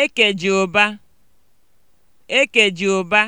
Ekeji ụba (Ekeji ụba